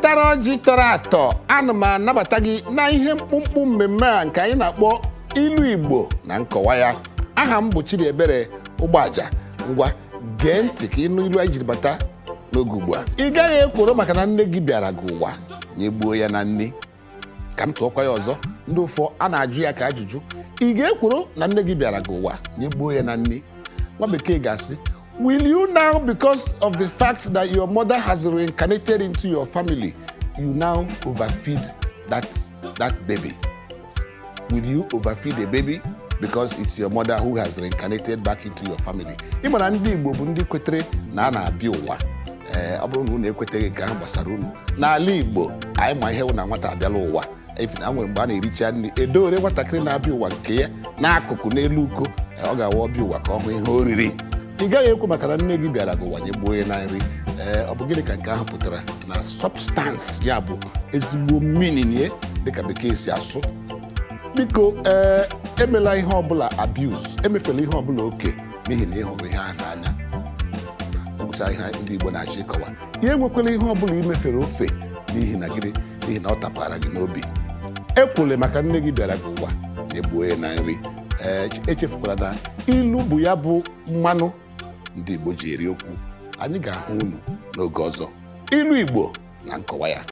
tara ọjị tọrọ atọ ana m anabata gị na ihe mkpụmkpụ mmemme a nke anyị na-akpọ ilu Igbo na nkọwa ya aha m bụ ebere ụgbọaja ngwa gee ntị ka ịnụ ilu anyị jiri bata n'oge ugbu a ị gaghị ekworo maka na nne gị bịara gị ụwa gbuo ya na nne ka m tụọkwa ya ọzọ ndị ụfọ a na-ajụ ya ka ajụjụ ị ga-ekworo na nne gị bịara gị ụwa nyegbuo ya na nne nwa bekee ga-asị Will you now, because of the fact that your mother has reincarnated into your family, you now overfeed that, that baby? Will you overfeed a baby because it's your mother who has reincarnated back into your family? Ị mara ndị Igbo bụ ndị kwetere na a na-abịa ụwa eh, ọ bụrụ na unu ekweteghị nke ahụ gbasara unu n'ala Igbo anyị ma ihe wụ na nwata abịala ụwa a nwere mgbe a na-ericha nri edowere nwatakịrị na-abịa ụwa nke ya n'akụkụ n'elu uko ọ ga-awa ọbịa ụwa ka ọ ihe oriri ị gaghị ekwu maka na nne gị bịara gị ụwa nye gbuo na nri ee ọ bụ gịnị ka nke ahụ pụtara na substance ya bụ ezigbo mmiri dịka bekee si asụ biko ee emela ihe ọbụla abuse emefela ihe ọbụla oke n'ihi na ịhụrụ ihe ahụ n'anya ọgụcha ihe ndị Igbo na-achọ ịkọwa ya enwekwala ihe ọbụla imefere ofe n'ihi na gịnị n'ihi na ọ tapara gị n'obi ekwule maka nne gị bịara gị ụwa na egbuo ya na nri ee echefukwala na ilu bụ ya bụ mmanụ ndị Igbo ji eri okwu anyị ga-ahụ unu n'oge ọzọ ilu Igbo na nkọwa ya